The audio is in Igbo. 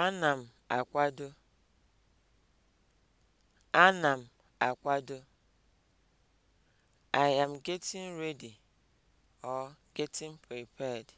Ana m akwado. Ana m akwado. I am getting ready or getting prepared.